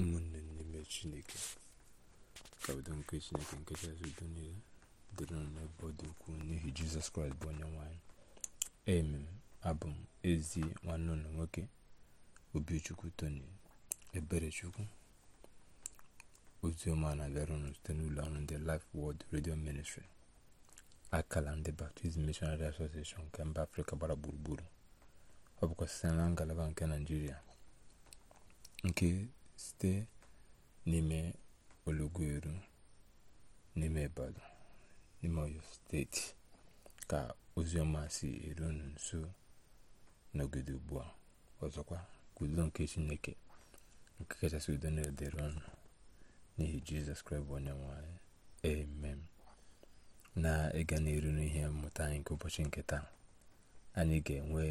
ụmụnne n'ime chineke ka nke chineke nke chasị udo niile dịrị nọ n'ebe dị ukwuu n'ihi jizọs kraịst bụ onye nwanyị emem abụ m ezi nwanne ụlọ nwoke obichukwu tony eberechukwu ozioma na-abịara ụnụ site n'ụlọ ọrụ ndị Life Word redio Ministry akala ndị Baptist Missionary Association nke mba Afrịka gbara gburugburu ọ bụkwa site na ngalaba nke naijiria nke site n'ime Ologuneru n'ime Ibadan n'ime Oyo steeti ka ọma si eru unu nso n'ogodo ugbu a ọzọkwa ka nke Chineke nke kachasị udo na-edere ọnụ n'ihi Jizọs Kraịst bụ onye nwe anyị amen na ịga n'iru n'ihe mmụta anyị nke ụbọchị nke taa anyị ga-enwe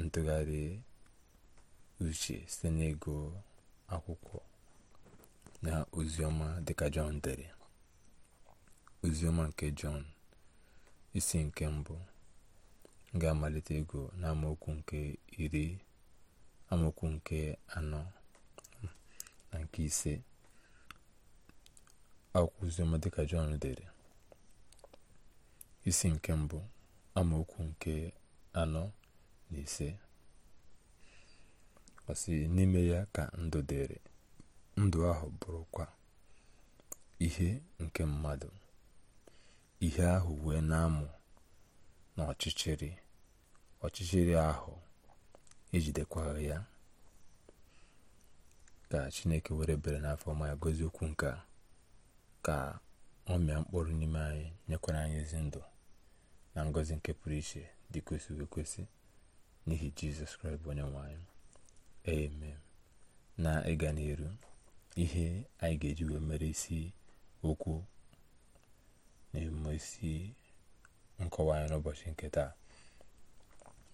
ntụgharị uche site n'ego akwụkwọ na oziọma dịka jọn dere oziọma nke jọn isi nke mbụ ga-amalite ego na amaokwu nke iri amaokwu nke anọ na nke ise akwụkwọ oziọma dịka jọn dere isi nke mbụ amaokwu nke anọ na ise ọ n'ime ya ka ndụ dịrị ndụ ahụ bụrụkwa ihe nke mmadụ ihe ahụ wee na-amụ na ọchịchịrị ahụ ejidekwaghị ya ka chineke were bere n'afọ ọma ya gozi okwu nke ka ọ mịa mkpụrụ n'ime anyị nyekwara anyị ezi ndụ na ngozi nke pụrụ iche dị kwesịrị kwesị ekwesị n'ihi jizọs kraịst bụ onye nwe eme na ịga n'iru ihe anyị ga-eji wee mere isi okwu na-eme isi nkọwa anyị n'ụbọchị nke taa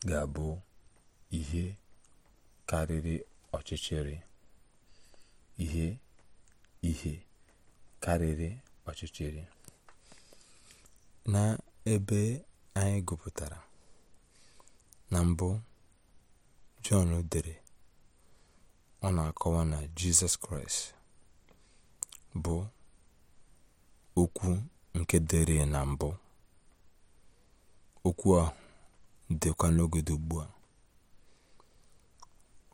ga-abụ ihe karịrị ọchịchịrị ihe ihe karịrị ọchịchịrị na ebe anyị gụpụtara na mbụ Jọn dere ọ na-akọwa na jizọs kraịst bụ okwu nke dịrị na mbụ okwu ahụ dịkwa n'oge ugbu a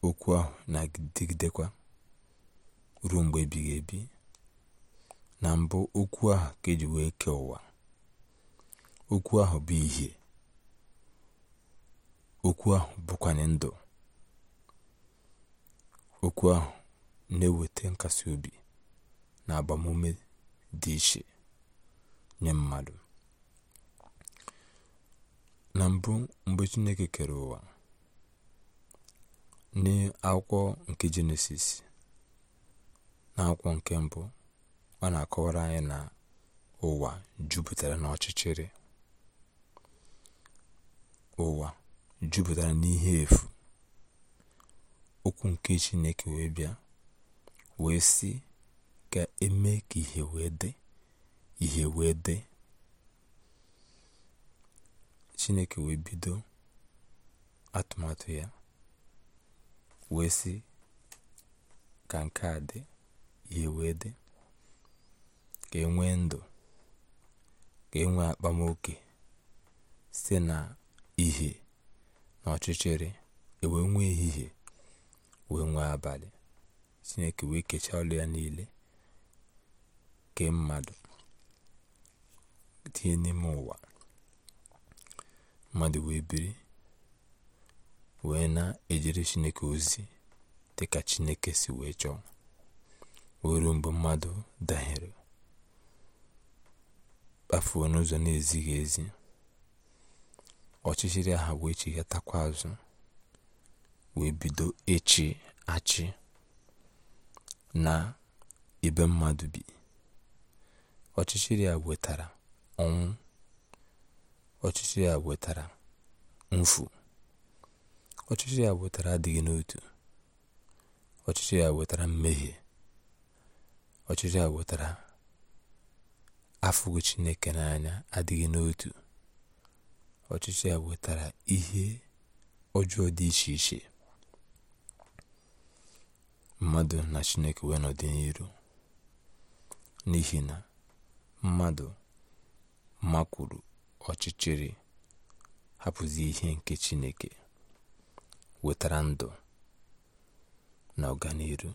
okwu ahụ na-adịgidekwa ruo mgbe ebighị ebi na mbụ okwu ahụ ka eji wee kee ụwa okwu ahụ bụ ihe okwu ahụ bụkwanye ndụ okwu ahụ na-eweta nkasi obi na agbamume dị iche nye mmadụ na mbụ mgbe chineke kere ụwa n'akwụkwọ nke jenesis n'akwụkwọ nke mbụ ọ na-akọwara anyị na ụwa jupụtara n'ọchịchịrị ụwa jupụtara n'ihe efu okwu nke Chineke wee bịa wee sị ka eme ka ihe wee dị ihe wee dị Chineke wee bido atụmatụ ya wee sị ka nke a dị ihe wee dị ka enwe ndụ ka enwe akpamoke site na ihe na ọchịchịrị ewee nwee ehihie wee nwee abalị chineke wee kechaa ọlụ ya niile kee mmadụ tinye n'ime ụwa mmadụ wee biri wee na-ejere chineke ozi dị ka chineke si wee chọọ wee ruo mgbe mmadụ dahere kpafuo n'ụzọ na ezighi ezi ọchịchịrị aha wee chighatakwa azụ wee bido ịchị achị na ibe mmadụ bi ọchịchịrị a wetara ọnwụ ọchịchịrị a wetara mfu ọchịchịrị a wetara adịghị n'otu ọchịchịrị a wetara mmehie ọchịchịrị a wetara afụghị Chineke n'anya adịghị n'otu ọchịchịrị a wetara ihe ọjọọ dị iche iche mmadụ na chineke wee nọdị n'iru n'ihi na mmadụ makwuru ọchịchịrị hapụzi ihe nke chineke wetara ndụ na ọganiru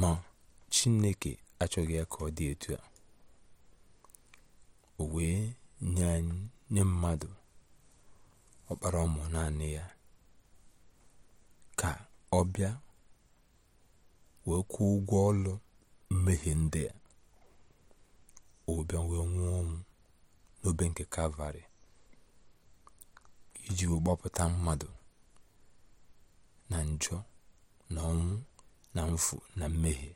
ma chineke achọghị ya ka ọ dị etu a o wee nye mmadụ ọkpara ụmụ naanị ya ka Ọbịa wee kwụọ ụgwọ ọlụ mmehie ndị a o nwee wee nwụọ ọnwụ n'obe nke kalvarị iji gbapụta mmadụ na njọ na ọnwụ na mfu na mmehie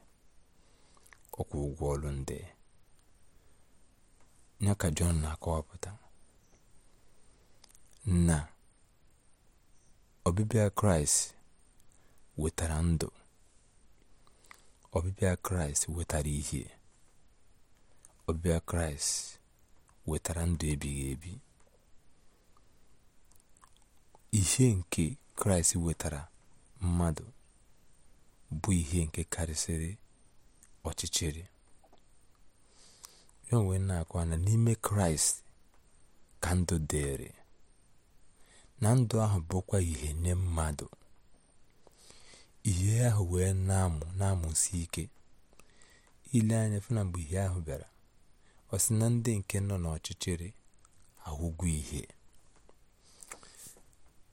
ọkwụ ụgwọ ọlụ ndị ya ka Jọn na-akọwapụta na ọbịbịa Kraịst wetara ndụ ọbịbịa kraịst wetara ihe ọbịbịa kraịst wetara ndụ ebighị ebi ihe nke kraịst wetara mmadụ bụ ihe nke karịsịrị ọchịchịrị ya onwe na akwana na n'ime kraịst ka ndụ dịrị na ndụ ahụ bụkwa ihe nye mmadụ ihe ahụ wee na-amụ na-amụsi ike ile anya fụ mgbe ihe ahụ bịara ọ sị na ndị nke nọ n'ọchịchịrị ahụgwọ ihe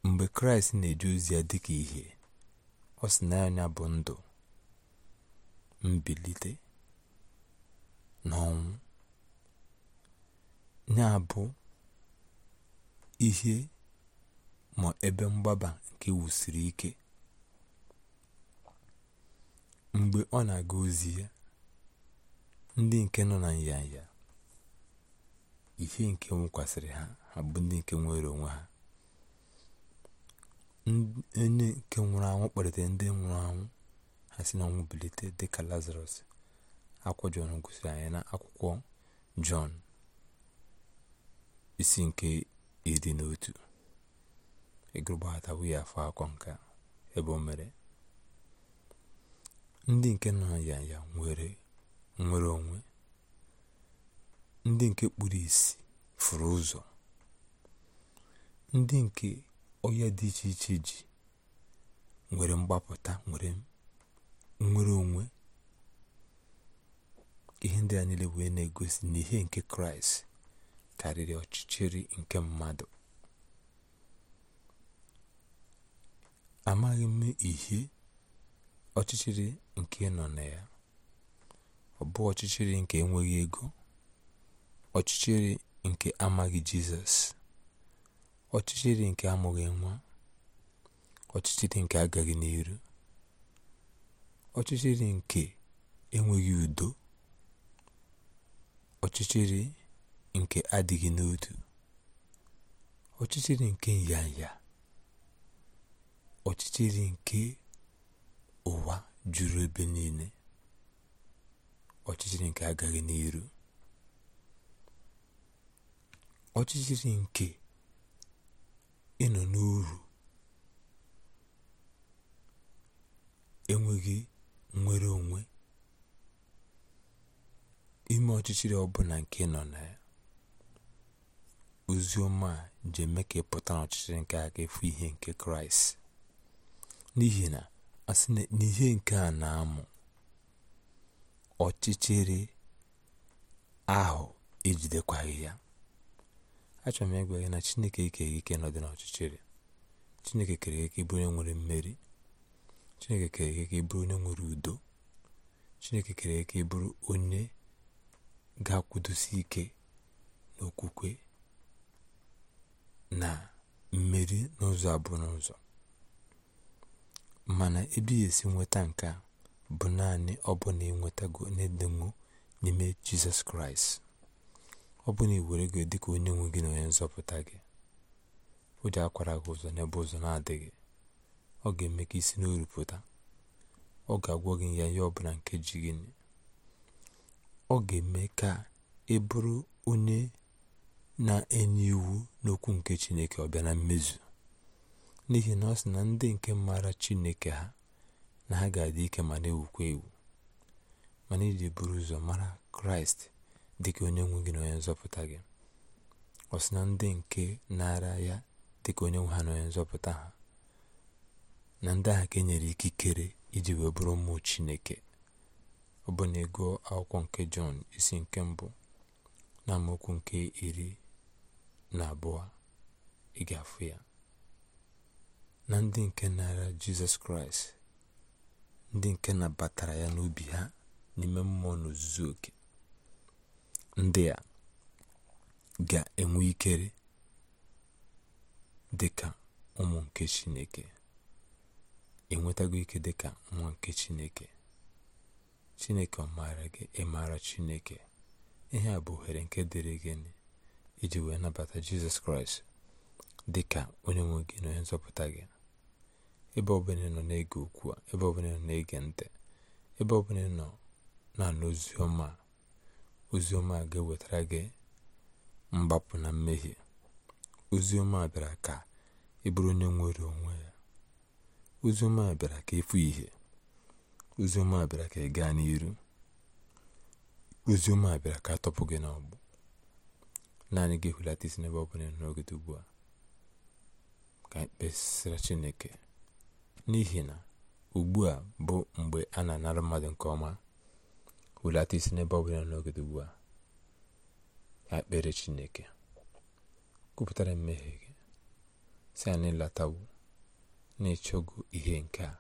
mgbe kraịst na eji ozi ya dịka ihe ọ sị na anya bụ ndụ mbilite na ọnwụ ya bụ ihe ma ebe mgbaba nke wusiri ike mgbe ọ na-aga ozi ya ndị nke nọ na nyanya ihe nke nwụkwasịrị ha ha bụ ndị nke nwere onwe ha onye nke nwụrụ anwụ kpalitere ndị nwụrụ anwụ ha si na ọnwụ bilite dịka lazarus akwụkwọ jọn gosiri anyị na akwụkwọ jọn isi nke iri na otu afọ akọ nka ebe o mere ndị nke nọ ya ya nwere nwere onwe ndị nke kpuru isi furu ụzọ ndị nke ya dị iche iche ji nwere mgbapụta nwere nwere onwe ihe ndị a niile wee na-egosi na ihe nke kraịst karịrị ọchịchịrị nke mmadụ amaghị m ihe ọchịchịrị nke nọ na ya ọ bụ ọchịchịrị nke enweghị ego ọchịchịrị nke amaghị Jizọs ọchịchịrị nke amụghị nwa ọchịchịrị nke agaghị n'iru ọchịchịrị nke enweghị udo ọchịchịrị nke adịghị n'otu ọchịchịrị nke nyanya ọchịchịrị nke ụwa juru ebe niile ọchịchịrị nke agaghị n'iru ọchịchịrị nke ịnọ n'uru enweghị nnwere onwe ime ọchịchịrị ọbụla nke nọ na ya Ozioma ji eme ka ịpụta n'ọchịchịrị nke aka efu ihe nke kraịst n'ihi na asị na ihe nke a na-amụ ọchịchịrị ahụ ejidekwaghị ya achọrọ m ịgwa gị na chineke ikeghị ike nọdị ọchịchịrị chineke kere ike ịbụrụ onye nwere mmeri chineke kere ike ịbụrụ onye nwere udo chineke kere ike ịbụrụ onye ga-akwụdosi ike n'okwukwe na mmeri n'ụzọ abụọ n'ụzọ mana ebe esi nweta nke a bụ naanị ọbụna ịnwetago n'edemụ n'ime jizọs kraịst ọ bụ na iwere gị dịka onye nwe gị na onye nzọpụta gị o ji akwara gị ụzọ n'ebe ụzọ na-adịghị ọ ga-eme ka isi n'oru pụta ọ ga-agwọ gị ya ihe ọbụla nke ji gị ọ ga-eme ka ị bụrụ onye na-enye iwu n'okwu nke chineke ọ bịa na mmezu n'ihi na ọ sị na ndị nke maara chineke ha na ha ga-adị ike ma na-ewukwa ewu mana iji buru ụzọ mara kraịst dịka onye nwe gị na onye nzọpụta gị ọ sị na ndị nke nara ya dịka onye nwe ha na onye nzọpụta ha na ndị ahụ ka enyere ikikere iji wee bụrụ ụmụ chineke ọ bụ na ego akwụkwọ nke jọn isi nke mbụ na amaokwu nke iri na abụọ ị ga-afụ ya na ndị nke nara jizọs kraịst ndị nke nabatara ya n'obi ha n'ime mmụọ n'ozuzu oke ndị a ga-enwe ikere dịka ụmụ nke chineke enwetago ike dịka nwa nke chineke chineke ọ maara gị ịmara chineke ihe a bụ ohere nke dịrị gị iji wee nabata jizọs kraịst dịka onye nwe gị na onye nzọpụta gị ebe ọbụla nọ na-ege okwu a ebe ọbụla nọ na-ege ntị ebe ọbụla nọ na-anụ oziọma oziọma ga-ewetara gị mgbapụ na mmehie oziọma bịara ka ị bụrụ onye nwere onwe ya oziọma bịara ka efu ihe oziọma bịara ka ị gaa n'iru oziọma bịara ka atọpụ gị n'ọgbụ naanị gị ehulata isi n'ebe ọ bụla n'oge ugbu a ka anyị Chineke n'ihi na ugbu a bụ mgbe a na-anara mmadụ nke ọma hulata isi n'ebe ọ bụla n'ogede ugbu a ya kpere chineke kwupụtara mmehie gị si a n'ịlatawo na-ịchọgo ihe nke a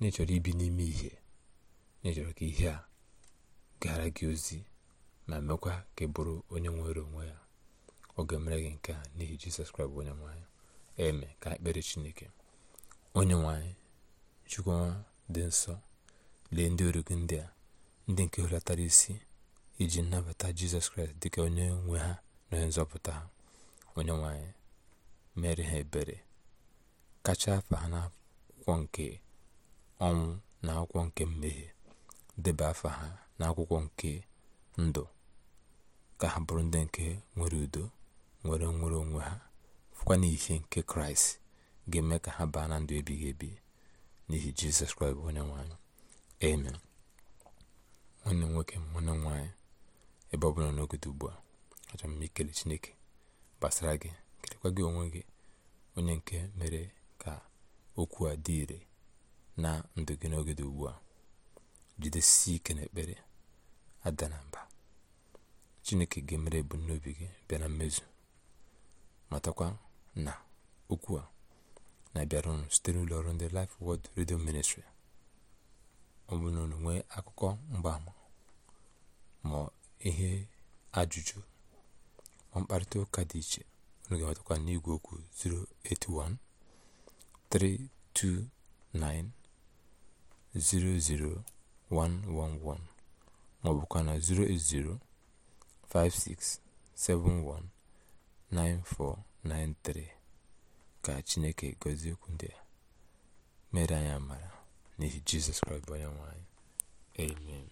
na ibi n'ime ihe na ka ihe a gara gị ozi ma mekwa ka ị bụrụ onye nwere onwe ya oge mere gị nke a n'ihi jizọs kraịst onye nwe eme ka ekpere chineke onye nwanyị chukwuma dị nsọ lee ndị ọrụ gị ndị a ndị nke hulatara isi iji nnabata jizọs kraịst dịka onye nwe ha na onye nzọpụta ha onye nwanyị mere ha ebere kacha afa ha n'akwụkwọ nke ọnwụ na akwụkwọ nke mmehie debe afa ha n'akwụkwọ nke ndụ ka ha bụrụ ndị nke nwere udo nwere nwere onwe ha fụkwa n'ihe nke kraịst ga-eme ka ha baa na ndụ ebighị ebi n'ihi jizọs kraịst onye nwanyị amen nwanne m nwoke nwanne m ebe ọ bụla n'ogodo ugbu a achọ m ikele chineke gbasara gị kelekwa gị onwe gị onye nke mere ka okwu a dị ire na ndụ gị n'ogodo ugbu a jidesi ike n'ekpere ada na mba chineke ga-emere ebumnobi gị bịa na mmezu matakwa na okwu a na-abịara unu site n'ụlọ ọrụ ndị Life Word Radio Ministry ọ bụrụ na nwee akụkọ mgbaama ma ihe ajụjụ ma mkparịta ụka dị iche unu ga-enwetakwa n'igwe okwu 081 329 00111 ma ọ bụkwa na 080 56719493 ka chineke gọzie okwu ndị a mere anyị amara n'ihi jizọs kraịst bụ onye nwanyị amen